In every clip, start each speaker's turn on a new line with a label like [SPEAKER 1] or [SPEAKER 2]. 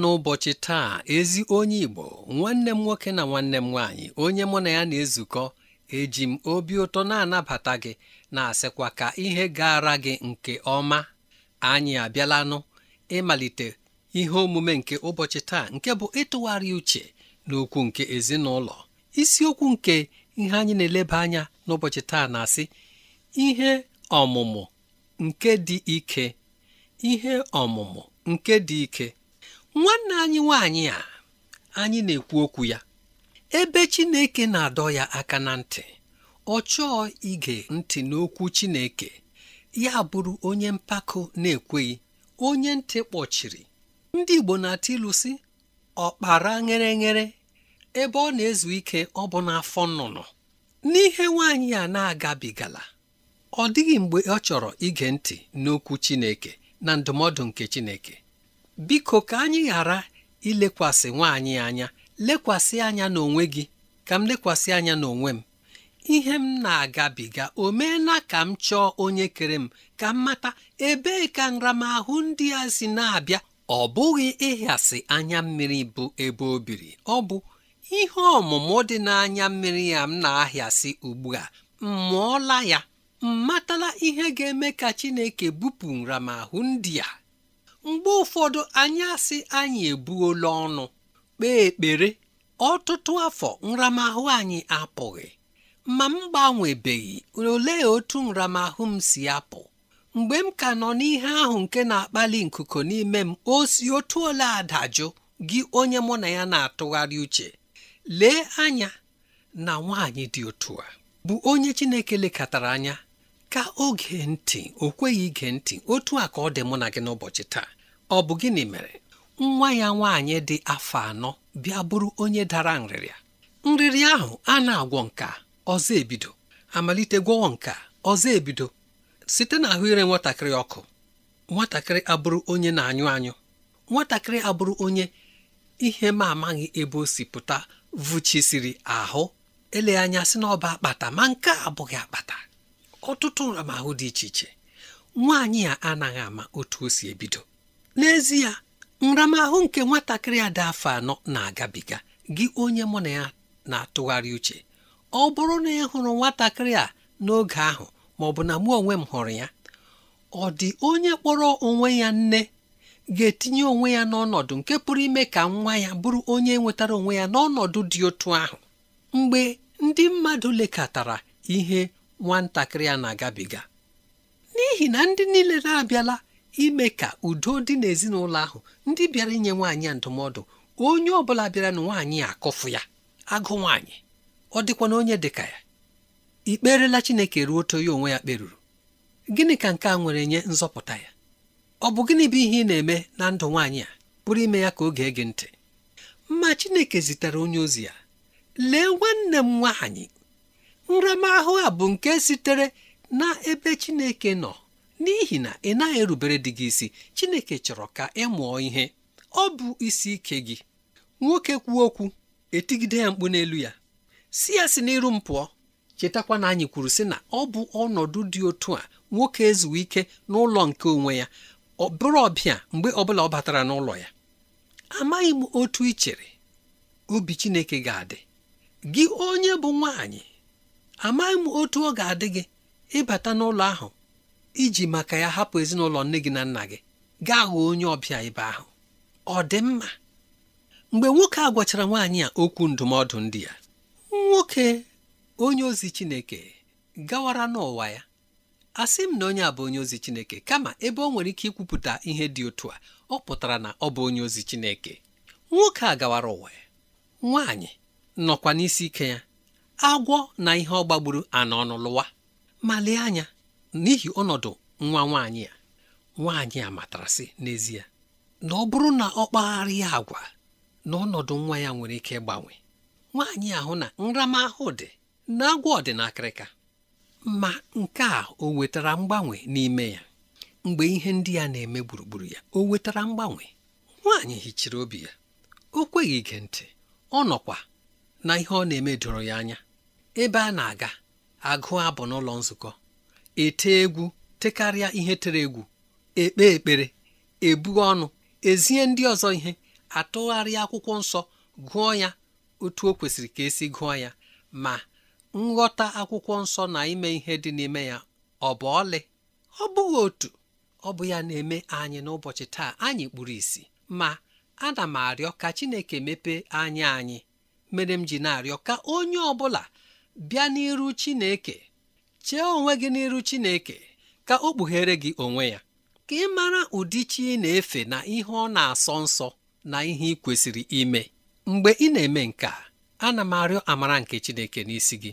[SPEAKER 1] n'ụbọchị taa ezi onye Igbo nwanne m nwoke na nwanne m nwaanyị onye mụ na ya na-ezukọ eji m obi ụtọ na-anabata gị na-asịkwa ka ihe gara gị nke ọma anyị abịalanụ ịmalite ihe omume nke ụbọchị taa nke bụ ịtụgharị uche n'okwu nke ezinụlọ isiokwu nke ihe anyị na-eleba anya n'ụbọchị taa na-asị ihe ọmụmụ nke dị ike ihe ọmụmụ nke dị ike nwanne anyị nwanyị a anyị na-ekwu okwu ya ebe Chineke na-adọ ya aka na ntị ọ chọọ ige ntị n'okwu Chineke ya bụrụ onye mpako na-ekweghị onye ntị kpọchiri ndị Igbo na-atụ ilu si ọkpara ngereghere ebe ọ na-ezu ike ọ bụ n'afọ nnụnụ n'ihe nwaanyị a na-agabigala ọ dịghị mgbe ọ chọrọ ige ntị n'okwu Chineke na ndụmọdụ nke Chineke biko ka anyị ghara ilekwasị nwaanyị anya lekwasị anya n'onwe gị ka m lekwasị anya n'onwe m ihe m na-agabiga o meela ka m chọọ onye kere m ka m mata ebee ka nramahụ ndị a si na-abịa ọ bụghị ịhịasị anya mmiri bụ ebe o biri ọ bụ ihe ọmụmụ dị n'anya mmiri ya m na-ahịasị ugbu a m mụọla ya m matala ihe ga-eme ka Chineke bupụ nramahụ ndị a mgbe ụfọdụ anyị asị anyị ebuola ọnụ kpee ekpere ọtụtụ afọ nramahụ anyị apụghị ma m gbanwebeghị ole otu nramahụ m si apụ mgbe m ka nọ n'ihe ahụ nke na-akpali nkuku n'ime m o si otu ole adajụ gị onye mụ na ya na-atụgharị uche lee anya na nwaanyị dị otu a bụ onye Chineke lekọtara anya ka oge ntị o kweghị ige ntị otu a ka ọ dị mụ na gị n'ụbọchị taa ọ bụ gịnị mere nwa ya nwaanyị dị afọ anọ bịa bụrụ onye dara nrịrịa nrịrịa ahụ a na-agwọ nka ọzọ ebido amalite gwọwọ nka ọzọ ebido site na ahụ ire nwatakịrị ọkụ nwatakịrị abụrụ onye na-anyụ anyụ nwatakịrị abụrụ onye ihe ma amaghị ebe o si vụchisiri ahụ ele anya sị na akpata ma nke a abụghị akpata ọtụtụ nramahụ dị iche iche nwaanyị a anaghị ama otu o si ebido n'ezie nramahụ nke nwatakịrị ada afọ anọ na-agabiga gị onye mụ na ya na-atụgharị uche ọ bụrụ na ị hụrụ nwatakịrị a n'oge ahụ ma ọ bụ na mụ onwe m hụrụ ya ọ dị onye kpọrọ onwe ya nne ga-etinye onwe ya n'ọnọdụ nke pụrụ ime ka nwa ya bụrụ onye nwetara onwe ya n'ọnọdụ dị otu ahụ mgbe ndị mmadụ lekọtara ihe nwatakịrị a na-agabiga n'ihi na ndị niile na-abịala ime ka udo dị n'ezinụlọ ahụ ndị bịara inye nwaanyị a ndụmọdụ onye ọ bụla bịara na nwaanyị akọfụ ya agụ nwaanyị ọ dịkwa na onye dịka ya ikperela Chineke ruo oto ya onwe ya kperuru gịnị ka nke a nwere nye nzọpụta ya ọ bụ gịnị bụ ihe ị na-eme na ndụ nwaanyị a pụrụ ime ya ka oge ege ntị ma Chineke zitere onye ozi ya lee nwanne m nwaanyị nramahụ a bụ nke sitere na ebe chineke nọ n'ihi na ị naghị erubere dị gị isi chineke chọrọ ka ị mụọ ihe ọ bụ isi ike gị nwoke kwuo okwu etigide ya mkpu n'elu ya si ya si n'iru m pụọ chetakwa na anyị kwuru sị na ọ bụ ọnọdụ dị otu a nwoke ezuwe ike n'ụlọ nke onwe ya ọ bụrụ ọbịa mgbe ọbụla ọ batara n'ụlọ ya amaghị m otu ichere chere obi chineke ga-adị gị onye bụ nwaanyị amaghị m otu ọ ga-adị gị ịbata n'ụlọ ahụ iji maka ya hapụ ezinụlọ nne gị na nna gị gaa ghọọ onye ọbịa ebe ahụ ọ dị mma mgbe nwoke a gwachara nwaanyị a okwu ndụmọdụ ndị ya nwoke onye ozi Chineke gawara n'ụwa ya asị m na onye a bụ onye ozi Chineke kama ebe ọ nwere ike ikwupụta ihe dị otu a ọ pụtara na ọ bụ onye ozi Chineke nwoke a gawara ụwa ya nwaanyị nọkwa n'isi ike ya agwọ na ihe ọ gbagburu ana lụwa ma lee anya n'ihi ọnọdụ nwa nwaanyị a nwaanyị a matarasị n'ezie na ọ bụrụ na ọ kpagharịa agwa na ọnọdụ nwa ya nwere ike ịgbanwe nwaanyị ahụ na nramahụ dị na agwọ dị ma nke a o wetara mgbanwe n'ime ya mgbe ihe ndị ya na-eme gburugburu ya o wetara mgbanwe nwaanyị hichiri obi ya o kweghị ige ntị ọ nọkwa na ihe ọ na-eme doro ya anya ebe a na-aga agụ abụ n'ụlọ nzukọ ete egwu tekarịa ihe tere egwu ekpe ekpere ebu ọnụ ezie ndị ọzọ ihe atụgharịa akwụkwọ nsọ gụọ ya otu o kwesịrị ka esi gụọ ya ma nghọta akwụkwọ nsọ na ime ihe dị n'ime ya ọ bụ ọlị ọ bụghị otu ọ bụ ya na-eme anyị n'ụbọchị taa anyị kpuru isi ma ana m arịọ ka Chineke mepee anya anyị mere m ji na-arịọ ka onye ọ bụla bịa n'iru Chineke chee onwe gị n'iru Chineke ka o kpughere gị onwe ya ka ị mara ụdị chi na-efe na ihe ọ na-asọ nsọ na ihe ị kwesịrị ime mgbe ị na-eme nke a ana m arịọ amara nke Chineke n'isi gị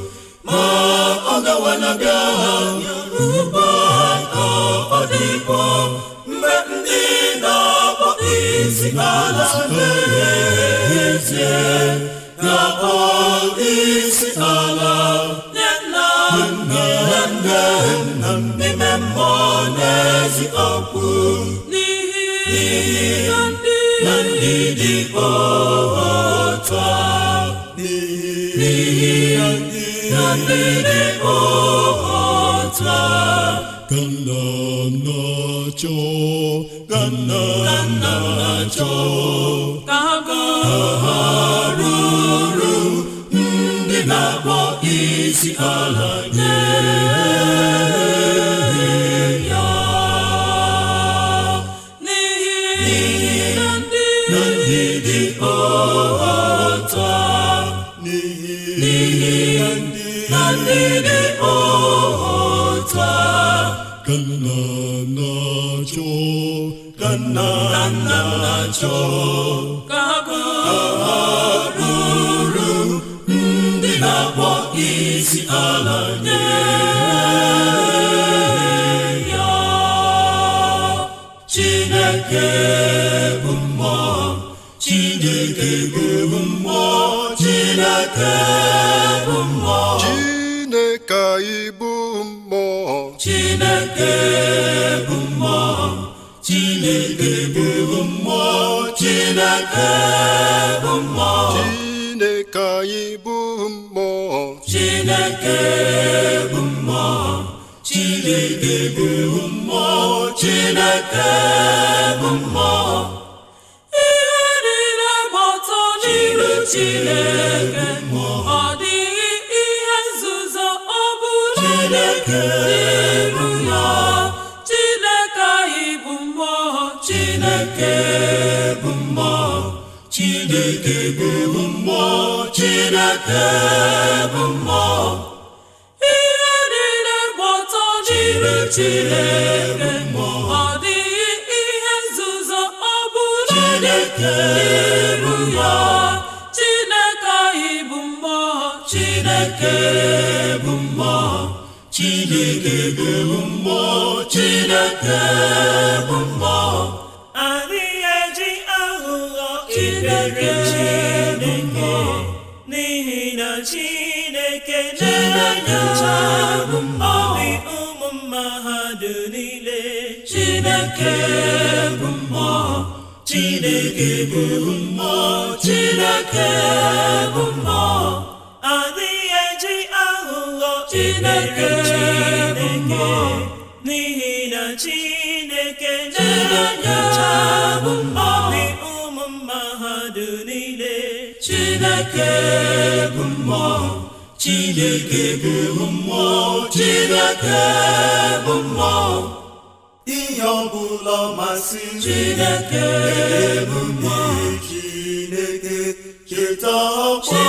[SPEAKER 2] ọ gawanaga ugbo ka ọ dịkwa mgbe ndị na-akpọ isi ala na-ezie na-akpọ isi ala ndị na nna n'ime mmụọ n'ezi n'ihi na ndị dị otu n'ihi na ndị dị ọhata ka nna ndị na-akpọ isi ala nye ndị dị ọta ka nna na-achọ ka na-achọ ka ha bụrụ ndị na-akpọ isi ala nye ya Chineke bụ mmụọ Chineke bụ mmụọ Chineke chineke bụ mmụọ chineke bụ mmụọ chineke bụ mmụọ chineke anyị bụ mmụọ chineke bụ mmụọ chineke bụ mmụọ chineke bụ mmụọ ihe niile gbọtọ n'iru chineke ọ dịghị ihe nzuzo ọ bụla dị chineke bụ mmụọ chineke bụ mmụọ ihe niile gbọtọ n'ime chineke ọ dịghị ihe nzuzo ọ bụla n'iru ya chineke anyị bụ mmụọ chineke bụ mmụọ chineke bụ mmụọ chineke bụ mmụọ chineke obi chineke bụ mmụọ chineke bụ mmụọ adịghị eji aghụghọ chineke n'ihi na chineke na bụ ụmụ mma niile chineke bụ mmụọ chineke bụ mmụọ chineke bụ mmụọ ihe ọbụla masịrị chineke bụ mmụọ chineke cheta ọkpọ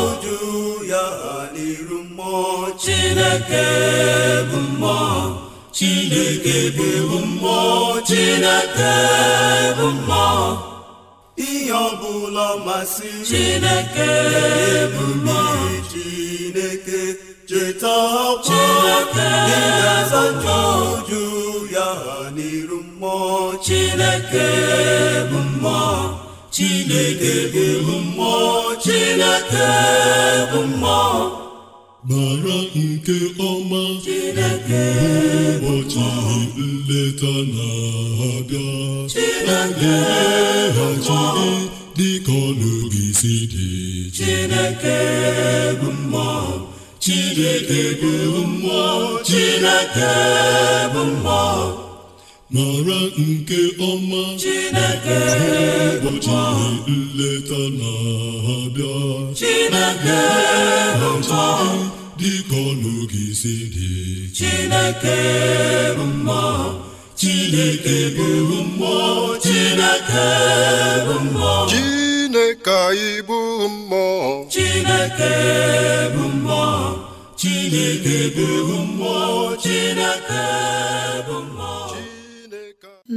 [SPEAKER 2] oju ya n'iru mmụọ chineke bụ mmụọ chineke bụ mmụọ chineke bụ mmụọ ihe ọbụla masịrị Chineke Chineke cheta ọkwa ịgazacha uju ya n'iru mmụọ Chineke bụ mmụọ Chineke bụ mmụọ Chineke bụ mmụọ mara nke ọma ụbọchị nleta na-abịa emeghachiri dịka ọnụgị si dị Chineke bụ mmụọ Chineke bụ mmụọ Chineke bụ mmụọ mara nke ọma Chineke ụbọchị nleta na-abịa Chineke mma dịka ọnụ gị si dị Chineke mma Chineke bụ mmụọ Chineke bụ mmụọ Chineke anyị bụ mmụọ Chineke bụ mmụọ Chineke bụ mmụọ Chineke bụ mmụọ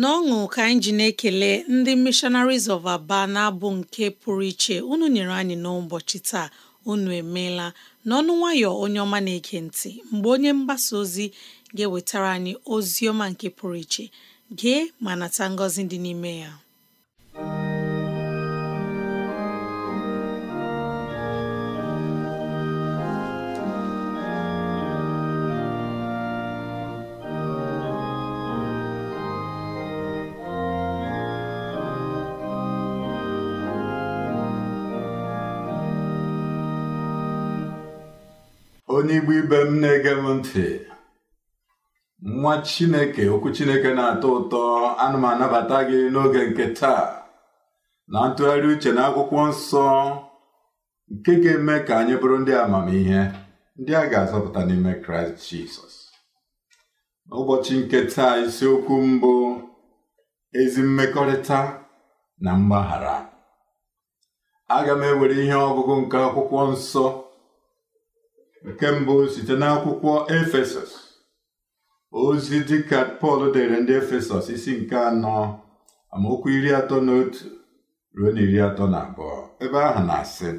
[SPEAKER 3] n'ọṅụ ka anyị ji na-ekele ndị Missionaries of Aba na-abụ nke pụrụ iche unu nyere anyị n'ụbọchị taa unu emeela n'ọnụ nwayọ onye ọma na-ege ntị mgbe onye mgbasa ozi ga-ewetara anyị ozi ọma nke pụrụ iche gee ma nata ngọzi dị n'ime ya
[SPEAKER 4] onye igbo ibe m na-ege m ntị nwa chineke okwu chineke na-atọ ụtọ anụmanabata m anabata gị n'oge nke taa na ntụgharị uche na akwụkwọ nsọ nke ga-eme ka anyị bụrụ ndị amamihe ndị a ga-azọpụta n'ime kraịst jizọs n'ụbọchị nke taa isiokwu mbụ ezi mmekọrịta na mgbaghara aga m ewere ihe ọgụgụ nke akwụkwọ nsọ nke mbụ site n'akwụkwọ efesọs ozi dịka pọl dere ndị efesọs isi nke anọ amaokwu iri atọ na otu ruo na iri atọ na abụọ ebe ahụ na-asị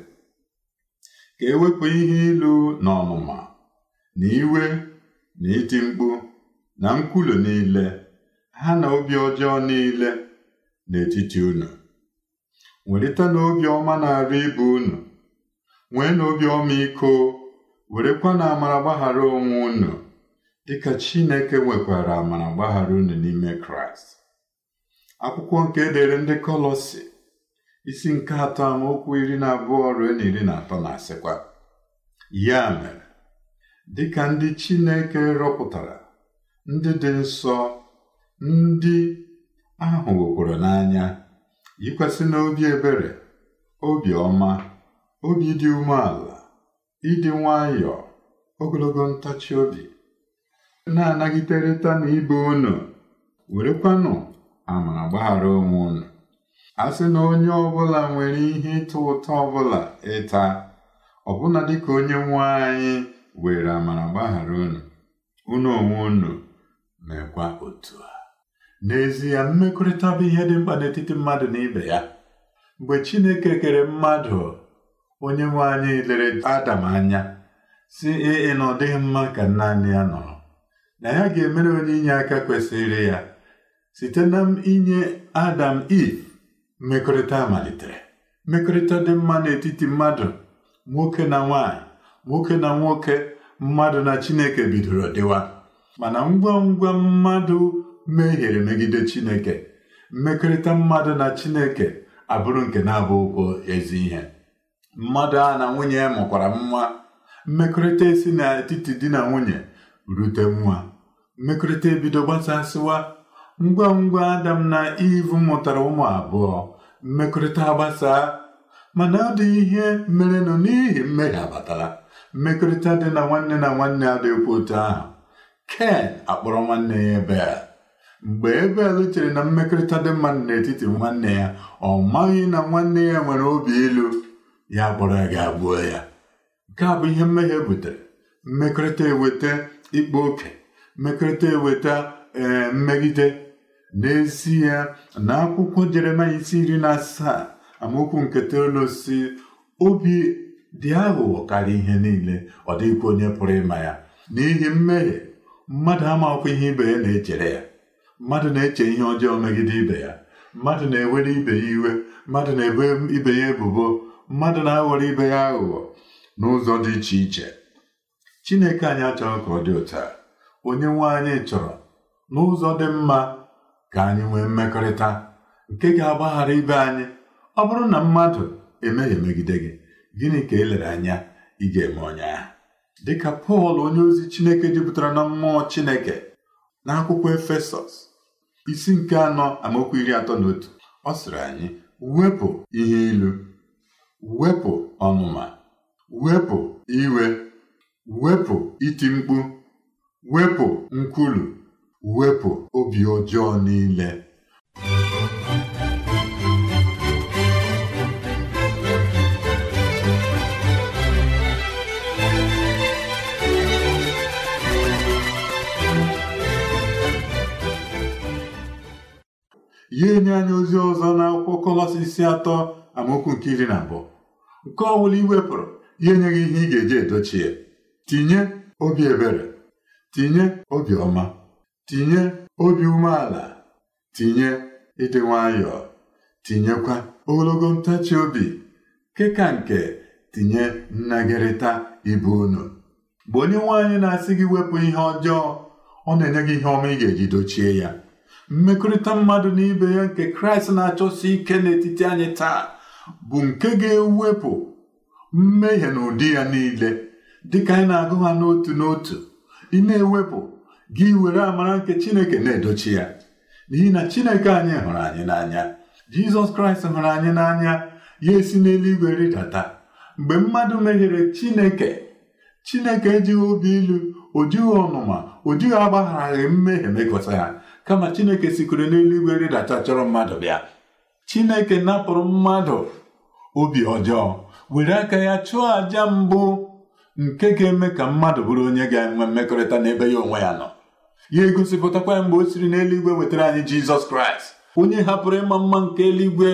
[SPEAKER 4] ka ewepụ ihe ilu na ọnụma na iwe na iti mkpu na nkwulu niile ha na obi ọjọọ niile n'etiti unu welite n'obi ọma na-arụ ibe unu nwee n'obi ọma iko Werekwa na amara gbaghara onwe unu dịka Chineke nwekwara amara gbaghara unu n'ime Kraịst akwụkwọ nke edere ndị kọlọsị isi nke atọ amaokwu iri na abụọ ruo na iri na atọ na-asịkwa ya mere dịka ndị Chineke rọpụtara ndị dị nsọ ndị ahụ wekwara n'anya yikwasị n'obi ebere obi ọma obi dị umeala ịdị nwayọ ogologo ntachi obi na na ibe unu werekwanụ amara gbaghara onwe unu a sị na onye ọbụla nwere ihe ịtọ ụtọ ọbụla ịta ọbụna dịka onye nwa anyị were amara gbaghara unu unu onwe unu mekwa otu a n'ezie mmekọrịta bụ ihe dị mkpa n'etiti mmadụ na ibe ya mgbe Chineke kere mmadụ onye nwe anyị lere Adam anya si 'Ee, na ọ dịghị mma ka naanị ya nọrọ na ya ga-emere onye inye aka kwesịrị ya site na inye Adam Eve mmekọrịta malitere mmekọrịta dị mma n'etiti mmadụ nwoke na nwaanyị nwoke na nwoke mmadụ na Chineke bidoro dịwa mana ngwa ngwa mmadụ mehiere megide Chineke mmekọrịta mmadụ na Chineke abụrụ nke na-abụ ụkwụ ezi ihe mmadụ a na nwunye mụkwara nwa mmekọrịta esi n'etiti di na nwunye rute nwa mmekọrịta ebido gbasasịwa ngwa ngwa adam na ivu mụtara ụmụ abụọ mmekọrịta gbasaa mana ọ dịghị ihe nọ n'ihi mmehie abatara mmekọrịta dị na nwanne na nwanne adịghịkwa otu ahụ ken akpọrọ nwanne ya ebel mgbe ebel chere na mmekọrịta dị mma n'etiti nwanne ya ọ maghị na nwanne ya nwere obi ilu ya kpọrọ gị agbuo ya nke a bụ ihe mmehie butere mmekọrịta eweta ikpa oke mmekọrịta eweta ee eh, mmegide n'ezie na akwụkwọ Jeremaya isi iri na asaa amaokwu nke toolu osisi obi dị aghụghọ karịa ihe niile ọ dịghịkwa onye pụrụ ịma ya n'ihi mmehie mmadụ amakwụ ihe ibe ya na-echere ya mmadụ na-eche ihe ọjọọ megide ibe ya mmadụ na-ewere ibe ya iwe mmadụ na-ebo ibe ya ebubo mmadụ na-aghọrọ ibe ya aghụghọ n'ụzọ dị iche iche Chineke anyị achọghị ka ọ dị ụta onye nwe anyị chọrọ n'ụzọ dị mma ka anyị nwee mmekọrịta nke ga-agbaghara ibe anyị ọ bụrụ na mmadụ emeghị megide gị gịnị ka elere anya ị ga-eme onye dịka Pọl onye ozi Chineke jupụtara na mmụọ Chineke akwụkwọ Efesọs isi nke anọ amaokwu iri atọ na otu ọ sịrị anyị wepụ ihe ilu wepụ ọnụma wepụ iwe wepụ iti mkpu wepụ nkwulu wepụ obi ọjọọ niile ya enye anya ozi ọzọ na-akwụkwọ n'akwụkwọ Kọlọsisi atọ amaokwu nke iri na abụọ nke ọ bụla iwepụrụ ya enyeghị ihe ị ga-eji edochi ya tinye obi ebere tinye obi ọma tinye obi umeala tinye ịdị nwayọọ tinyekwa ogologo ntachi obi keka nke tinye nnagịrịta ibu unu mgbe onye nwaanyị na-asị gị wepụ ihe ọjọọ ọ na-enye gị ihe ọma ị ga-eji dochie ya mmekọrịta mmadụ na ibe ya nke kraịst na-achọsi ike n'etiti anyị taa bụ nke ga-ewepụ mmehie na ụdị ya niile dịka anyị na-agụ ha n'otu n'otu ị na-ewepụ gị were amara nke Chineke na-edochi ya n'ihi na Chineke anyị hụrụ anyị n'anya Jizọs Kraịst hụrụ anyị n'anya ya esi n'eluigwe rịdata mgbe mmadụ mehiere Chineke Chineke ejighị obi ilu o jighị ọnụma o jighị agbagharaghị mmehie mekọta ya kama Chineke sikwere n'eluigwe rịdata chọrọ mmadụ bịa chineke napụrụ mmadụ obi ọjọọ were aka ya chụọ àja mbụ nke ga-eme ka mmadụ bụrụ onye ga-enwe mmekọrịta n'ebe ya onwe ya nọ ya egosipụtakwa ya mgbe o siri n'eluigwe wetara anyị jizọs kraịst onye hapụrụ ịma mma nke eluigwe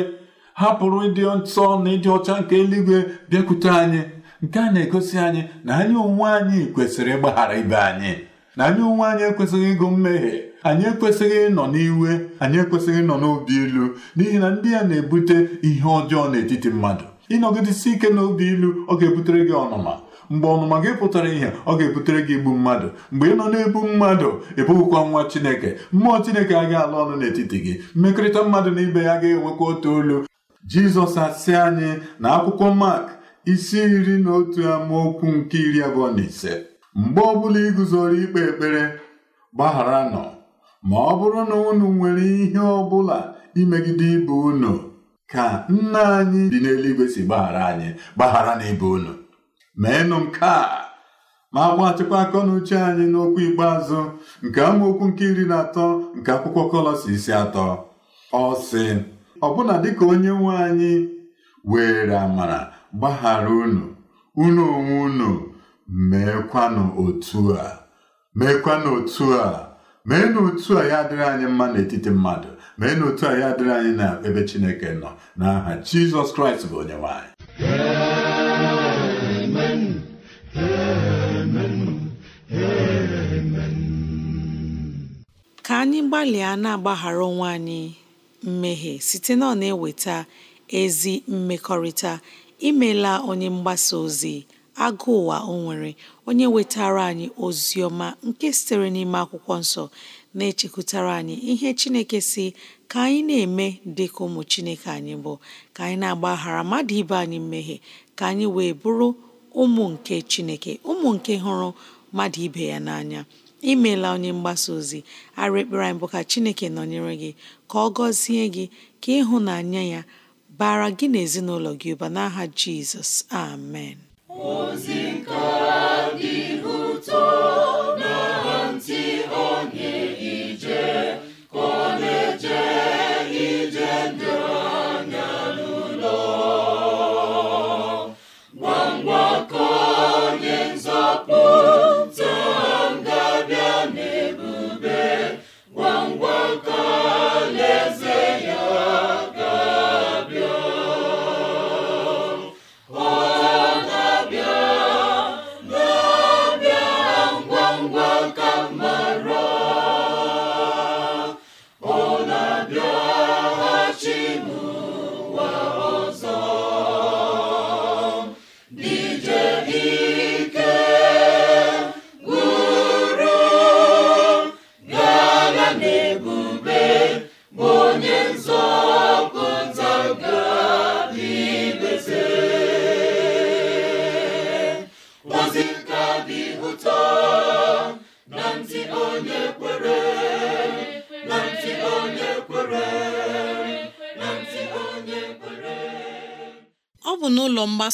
[SPEAKER 4] hapụrụ ịdị nsọ na ịdị ọcha nke eluigwe bịakwute anyị nke a na-egosi anyị na anyị onwe anyị kwesịrị ịgbaghara ibe anyị na anyị onwe anyị ekwesịghị ịgụ mmehie anyị ekwesịghị ịnọ n'iwe anyị ekwesịghị ịnọ n'obi ilu n'ihi na ndị ya na-ebute ihe ọjọọ n'etiti mmadụ ịnọgidesi ike n'obi ilu ọ ga-ebutere gị ọnụma mgbe ọnụma gị pụtara ihe ọ ga-ebutere gị igbu mmadụ mgbe ị nọ n'ebu mmadụ ịbụghịkwa nwa chineke mmụọ chineke agaghị alụ ọnụ n'etiti gị mmekọrịta mmadụ na ibe ya ga-enwekwa otu olu jizọs asị anyị na akwụkwọ mark isi iri na otu amaokwu nke iri abụọ na ise mgbe bụla iguzoro ikpe ekpere nọ Ma ọ bụrụ na unu nwere ihe ọbụla imegide ibe unu ka nna anyị dị n'eluigwe si gbaghara anyị gbaghara n'ibe unu meenụ nke a ma agbatịkwa aka na uche anyị n'okwu ikpeazụ nke amaokwu nke iri na atọ nke akwụkwọ Kọlọsi isi atọ ọ sị ọbụna dịka onye nwe anyị were amara gbaghara unu unu onwe unu meekwanụ otu a meekwanụ otu a mee na a ya adịrị anyị mma n'etiti mmadụ mee na otu a ya adịrị anyị na ebe Chineke nọ n'aha Jizọs Kraịst bụ onyenwe anyị
[SPEAKER 3] ka anyị gbalịa na-agbaghara onwe anyị mmehie site na ọ na-eweta ezi mmekọrịta imela onye mgbasa ozi agụ ụwa o nwere onye wetara anyị ozi ọma nke sitere n'ime akwụkwọ nsọ na-echekwutara anyị ihe Chineke si ka anyị na-eme dị ka ụmụ Chineke anyị bụ ka anyị na-agbaghara mmadụ ibe anyị mmehie ka anyị wee bụrụ ụmụ nke Chineke ụmụ nke hụrụ mmadụ ibe ya n'anya imeela onye mgbasa ozi ara ekpere anyị bụ ka Chineke nọnyere gị ka ọ gọzie gị ka ịhụnanya ya bara gị na ezinụlọ gị ụba n'aha Jizọs amen
[SPEAKER 2] ozi kaaagị